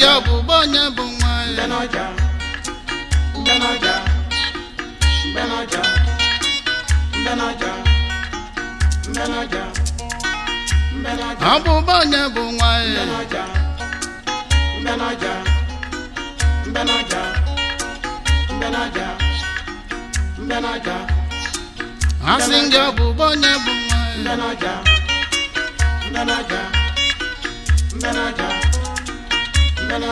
ndị ọgbụgba onye bụ nwa ya onye bụ nwa ya ndị onye bụ nwa ya na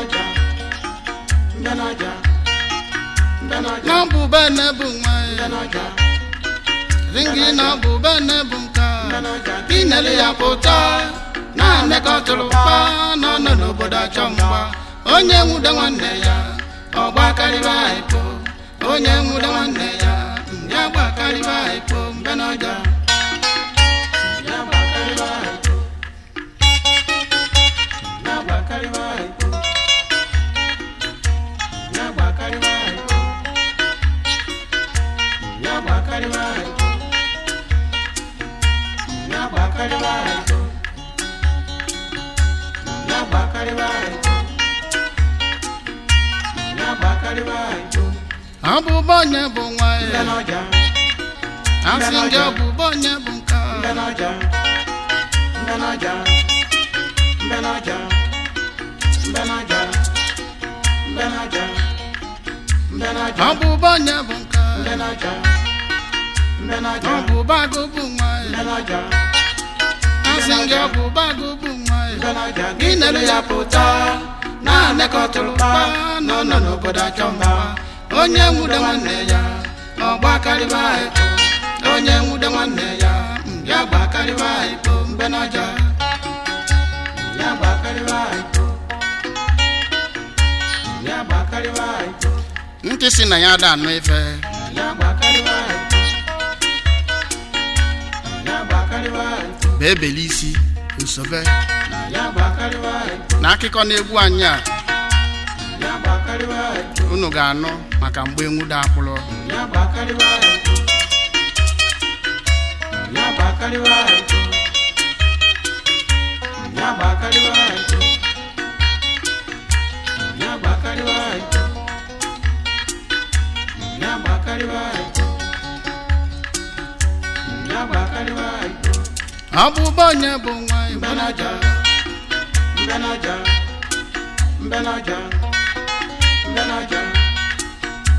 buba na bunwa na buba na bunka ya pụta na n'obodo achọ onye nwude nwanne ya ọgba karịba onye nwude nwanne ya ndị agba karịba anyị ọbụbọ onye bụ nwa ya asị gị ọbụbọ onye bụ nke ọbụbọ onye bụ nke ọbụbọ agụ bụ nwa ya asị gị ọbụbọ agụ nwa ya gị nere ya pụta na-anekọtụrụ mba nọ n'obodo achọ mba onye nwude nwanne ya ọgbakarịba onye nwude nwanne ya ya gbakarịba ekpo mgbe n'ọja ya ya ntị si na ya ada anụ ife ya ya bee isi usobe na akụkọ na egwu anyị a unu ga-anụ maka mgbe enwude akpụrụ ọbụba onye bụ nwa mbenaja mbenaja mbenaja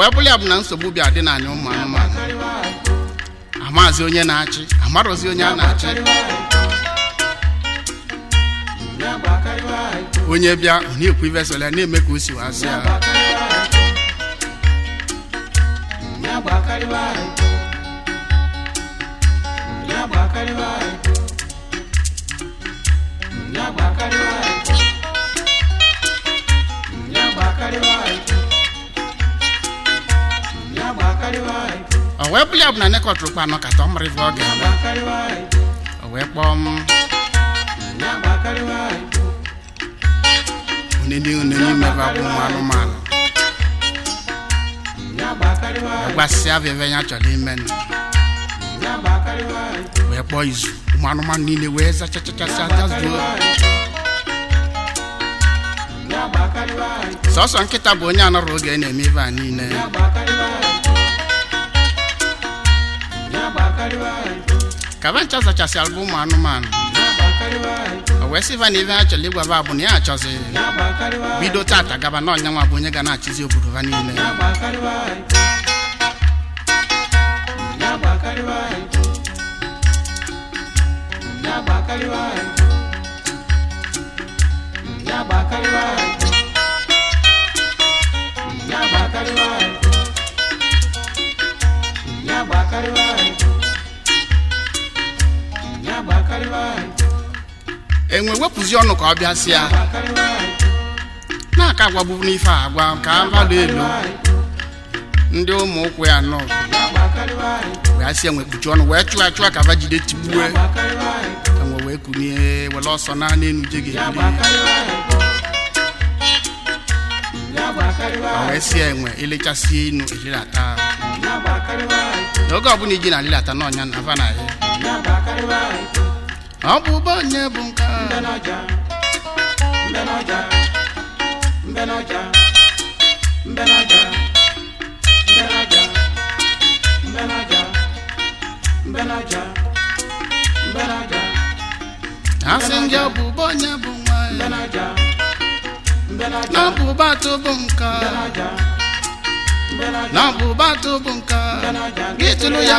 wee bụ na nsogbu bịa dị n'anya ụmụ anụmanụ amazi onye na-achị amarụzi onye a na-achị onye bịa onye na-ekwu na-eme ka o si ya ọbụla ọbụla nekọtụrụkwa anọ kata ọ mara ebe ọ ga-agba o wee kpọọ m onene onene imebe akwụ nwa anụmanụ gbasịa veve ya chọrọ ime nụ wee kpọọ izu ụmụ anụmanụ niile wee zachachachasịa jazuo sọsọ nkịta bụ onye anọrọ oge na-eme ibe a niile ka ba nchọzachasịala bụ ụmụ anụmanụ wee sịva na ibe ha chọrọ ịgwa ba na ya achọzi bido tata gaba na ọnyanwa bụ onye ga na-achịzi obodo ha niile enwe wepụzi ọnụ ka ọ bịa bịasịa na-aka agwagbubu n'ife agwa ka mmadụ elu ndị ụmụ ụkwụ ya nọ wee sị enwe kpuchi ọnụ wee chụọ achụọ ka va jide tigbue enwe wee kunie were ọsọ na n'elu je ga wee sie enwe elechasie inu ejiri ata n'oge ọbụla iji na alilata n'ọnya na ava na ya ọbụba onye bụ bụ nka tụbụ nka gị tụrụ ya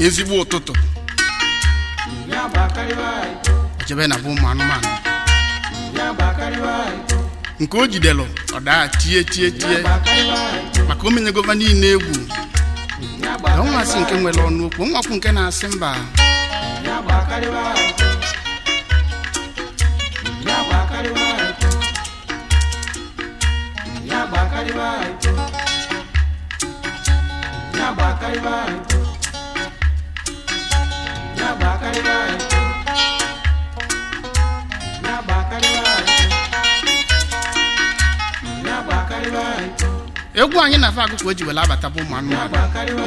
ezigbo ụtụtụ ochebe na bụ ụmụ anụmanụ nke o jidelu ọ daa tie tie tie maka omenye gova niile egwu na nwa asị nke nwere ọnụ okwu nwakwụ nke na-asị mba egwu anyị na-afe agụkụ o ji were abata bụ ụmụ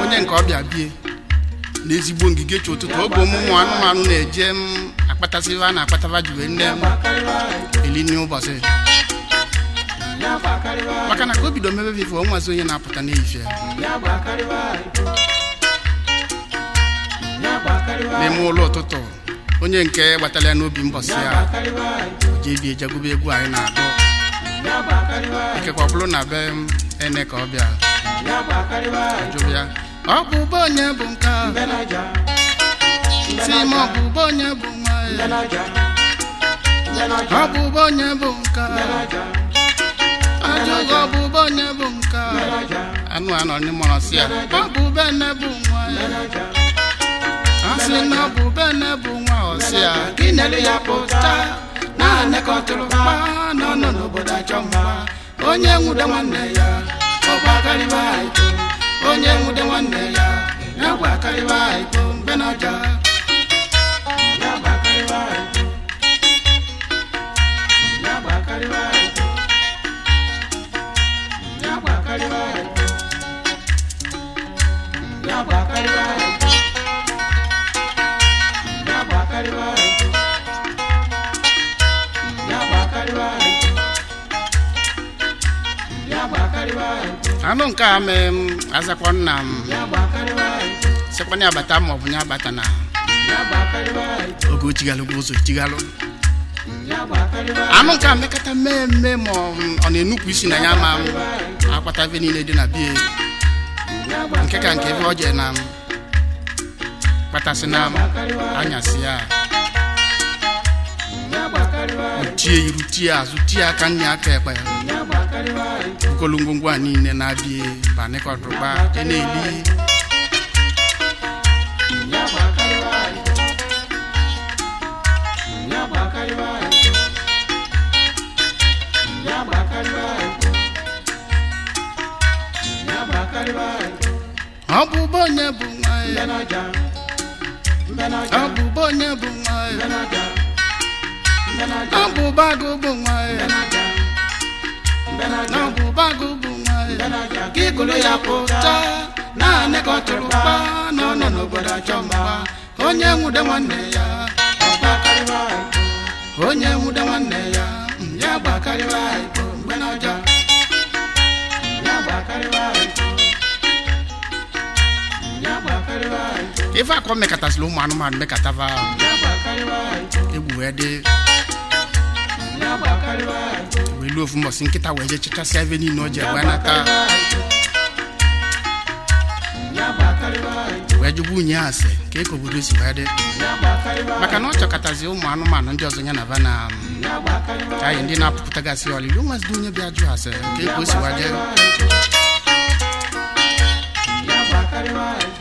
onye nke ọbịa bie n'ezigbo ngige chi ụtụtụ oge ọmụmụ anụmanụ na-eje m akpata a na-akpataba jiwe nne m elinye ụbọchị. maka na ka o bido mebe nwazi onye na-apụta n'ehihie n'ime ụlọ ụtụtụ onye nke gbatara ya n'obi mbọsị ya ebi ejegube egwu anyị na-akpọ ikekwa bụrụ na be ene ka ọ bịa jụrụ ya ọ bụ onye bụ nke si m ọ bụ onye bụ nwa ya ọ bụ onye bụ nke ajụghị ọbụba onye bụ nke anụ anọ si ya ọ bụ bụ nwa ya na bụ nne bụ nwa ọsị ya gị ya pụta na-anekọtụrụ mma nọ n'obodo achọ mma onye nwude nwanne ya ọgwa onye nwude nwanne ya ya gwa karịba iko mbe a m mm, azakwa nna m abata ma ọ bụ ya abata na oge ochighalụgwa ụzọ echighalụ anụ nke a mekata mee mme ma ọ mm, na enukwu isi na ya ma mm, akpata ebe niile dị na bie nke ka nke ebe ọ jee na kpatasị na anyasi ya tie iru tie azụ tie aka nne aka ekpe ya nkolongo ngwa niile na-abịa banịkọtụgba na-eli ọ bụbụ onye bụ nwa ya ọ bụbụ onye ọ na ọgwụbago bụ nwaanyị ka ikolo ya pụta naanị ka ọ tụrụ kpa na ọ nọ n'obodo achọ onye nwude nwanne ya onye nwude nwanne ya ya gbakarịwa mgbe n'ọja ife akọ mekatasịla ụmụ anụmanụ mekatava egwu wee dị welu ofu mbọsị nkịta wee jee chechasịa ebe niile o ji wee nata wee jụgbu unyi asị si wee maka na ọ chọkọtazi ụmụ anụmanụ ndị ọzọ ya na ba na ka anyị ndị na-apụpụtagasị ọlịlị onwezidi onye bịa jụ asị ka eke o si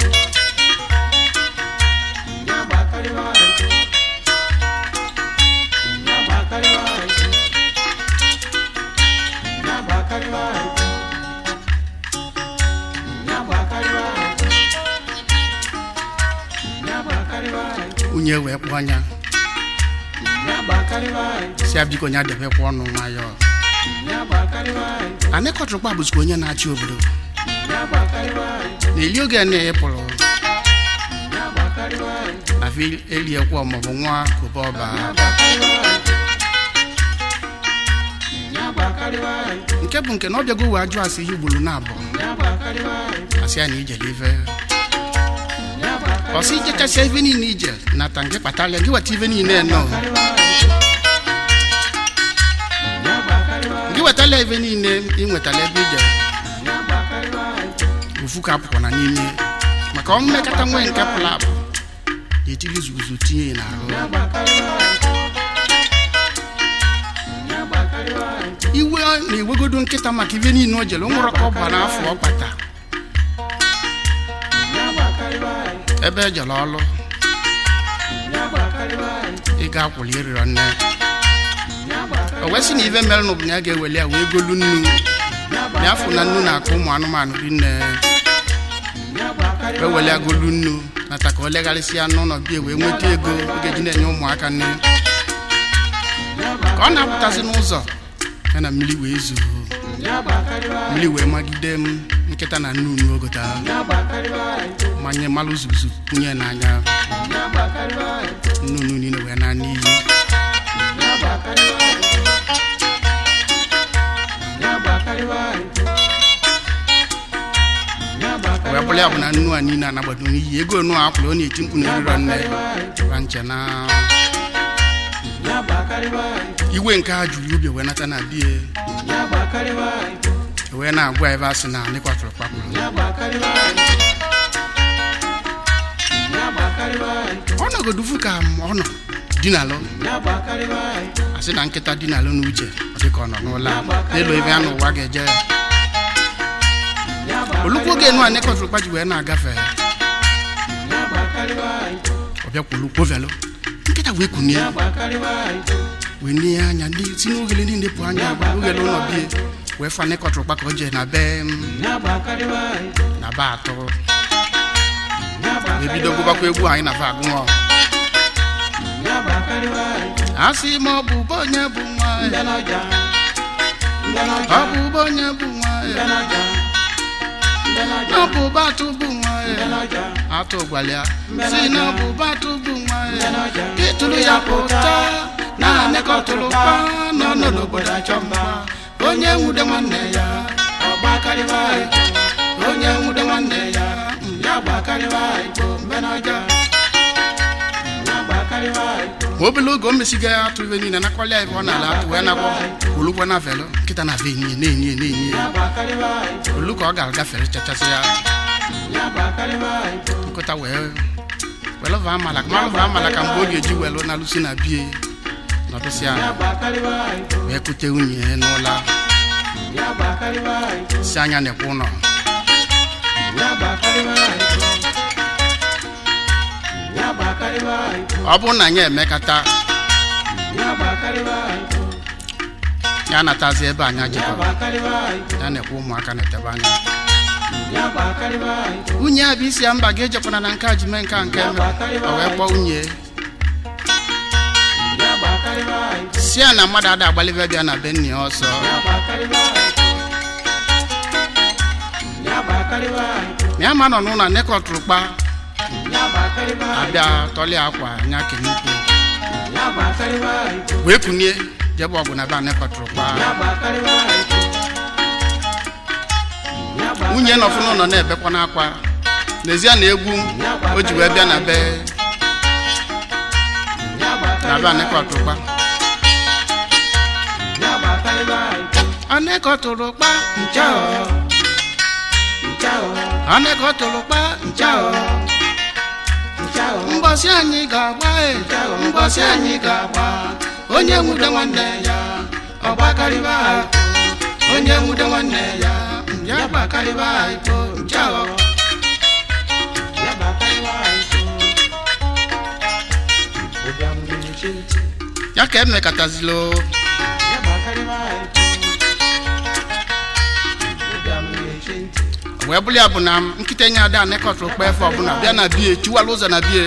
nwunye wee kpọnya si ya biko nya debekwa ọnụ nwayọọ anyị kọtụrụ kpa bụzikwa onye na-achị obodo na-eli oge na ịpụrụ afi eliekwa maọbụ nwa kobe ọba nke bụ nke na ọ bịago wee ajụ asị ihe ugboro na abụọ asị ya na ijele ife ọsị ichekasịa ife na ije nata nke kpatalịa gị weta ife niile nọ gị wetala ị nwetala ebe ije ofu ka n'ime maka ọmmekata nwee nke pụrụ apụ etiri izuzu tinye n'ahụ iwe na iwegodo nkịta maka ibe o jere nwụrụ ka ọ bụ na ọ kpata ebe ejere ọlụ ị ga-akwụli ịrịrọ nne o wesị na ive mere n'ụbụ na ya ga-eweli ya wee golu nnu ya na nnu na-akụ ụmụ anụmanụ dị nne wee weli ya golu nnu nata ka o legharịsịa n'ụlọ bie wee nweta ego ọ ga-eji na-enye ụmụaka nne ka ọ na apụtazi n'ụzọ ya na mmiri wee zuo mmiri wee magide m nkịta na nnu unu ogota manye mmalụ zuzu kwunye n'anya nnunu niile wee na n'iyi wee bụ na nnu a niile anagbado n'iyi ego onu akwụrụ ọ na-eti mkpu na eriro nne ra iwe nke a juru ubi wee nata na di e, wee na-agwa ebe asị na anyị kwatụrụ kpakpụrụ ọ nọgodufu ka ọ nọ dinalụ asị na nkịta dinalụ n'uche dịka ọ nọ n'ụlọ n'elu ebe a n'ụwa ga-eje olukwu oge enu anyị kwatụrụ kpaji wee na-agafe ọ bịakwulu kwovelụ nkịta wee kunie wee anya anya si n'ogele niile pụ anya gba ogele ụlọ bie wee fane kọtụrụ kpaka oje na be na be atọ ebido gụbakwa egwu anyị na va a sị ọ bụ onye bụ ọ onye bụ ọ bụ bụ si na ọ bụ ya pụta na-anakọtụrụ mba nọ n'obodo achọ mma onye nwude nwanne ya onye nwude nwanne ya ya gbakarịba igbo mbe n'ọja oge o mesigo ya atụ ibe niile nakọlịa ibe ọ na-ala atụ ya nagwọ olugbo na velo nkịta na na-enye na-enye olu ka ọ ga-agafere chachasị ya nkụta wee amala ka mgbe ọ ga-eji welu na lusi na bie nọdụsị anyị wee kute nwunye n'ụlọ si anya na-ekwe ụlọ ọ bụrụ na anyị emekata ya natazi ebe anyị jikọrọ ya na-ekwe ụmụaka na-etebe anya nwunye ya bụ isi ya mba ga-ejekwana na nke a nke nke o wee kpọọ nwunye si a na mmadụ ada agbalibe bịa na benni ọsọ ya ma nọ n'ụlọ nekọtụrụ kpa abịa tọli akwa nya kenikwu wee kunie jebe ọgụ na be anekọtụrụ kpa nwunye nọfụ n'ụlọ na-ebekwa n'akwa n'ezie na egwu o ji wee bịa na be na be anekọtụrụ ọneko tụrụ kpa nchao nchao tụrụ kpa anyị ga-agba e. anyị ga-agba onye nwude nwanne ya ọgbakarịba onye nwude nwanne ya ya gbakarịba ibo nchao ya gbakarịba obi amụrụ ya ka emekatazilo ya gbakarịba wee bụrụ ya bụ na nkịta enye ada anekọtụ okpe efe ọbụla bịa na bie chiwala ụzọ na bie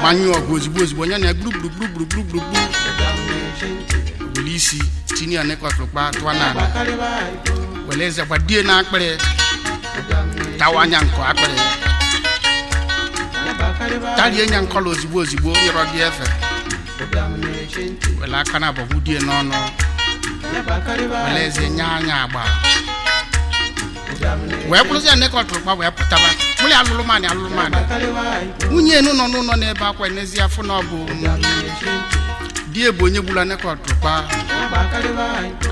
gbanyụọ ọgụ ozigbo ozigbo onye na gburugburugburugburugburugbu buli isi tinye ya nekọtụ okpe na n'ala were eze die na akpịrị tawa anya nkọ akpịrị tarie nya nkọla ozigbo ozigbo nyọrọ gị efe were aka na abọgbu die n'ọnụ eze nye anya agba wee bụrụzie na ịkọtụrụ gba wee pụtaba mụrụ alụrụ mmadụ alụrụ mmadụ nwunye enu nọ n'ụlọ na-ebe akwa n'ezie afọ na ọ bụ di ebe onye gburu nekọtụrụkpa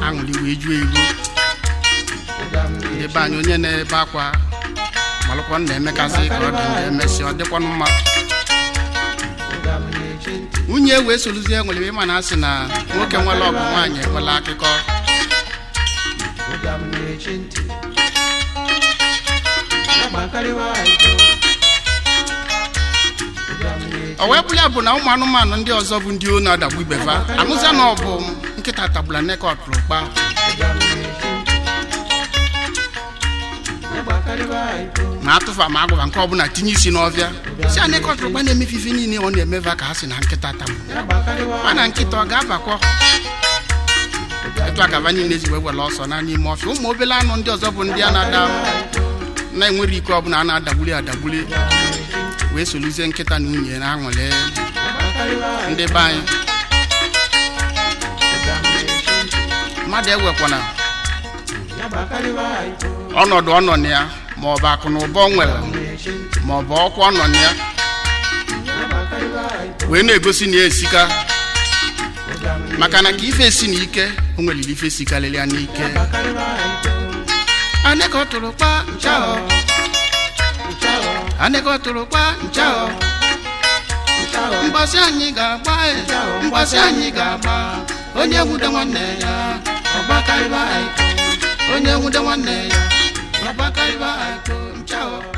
aṅụrị wee juo ego ebe anyị onye na-ebe akwa malụkwa na-emekasị ka ọ dị emesị ọ dịkwanụ mma nwunye wee soluzie nwere ịma na asị na nwoke nwere ọgụ nwaanyị ekwela akụkọ o wee bụrụ bụ na ụmụ anụmanụ ndị ọzọ bụ ndị onu adagbu ibefa amụza na ọ bụ nkịta tagbula nekọt rụkpa ma atụfa ma agwụba nke ọbụla tinye isi n'ọbịa si anyị kọtụrụkwa na-emefe ife niile ọ na-emeva ka ha si na nkịta tam mana nkịta ọ ga-abakwa etu akaba niile ezigbo ewere ọsọ na n'ime ọfịa ụmụ obele anụ ndị ọzọ bụ ndị a na-ada na-enwere ike ọbụla a na-adagbuli adagbuli wee soluzie nkịta na nwunye na-aṅụrị ndị be anyị mmadụ ewekwana ọnọdụ ọ nọ na ya ma ọ bụ akụ na ụba ọ nwere maọbụ ọkwa ọ nọ na ya wee na-egosi na ya esika maka na ka ife esi na ike o nwere ife si karịrịa n'ike aneka tụrụ kpa nchao aneka tụrụ kpa nchao mgbasị anyị ga-agba e, mgbasị anyị ga-agba onye nwude nwanne ya ọgbakarịba onye nwude nwanne ya alba kun chao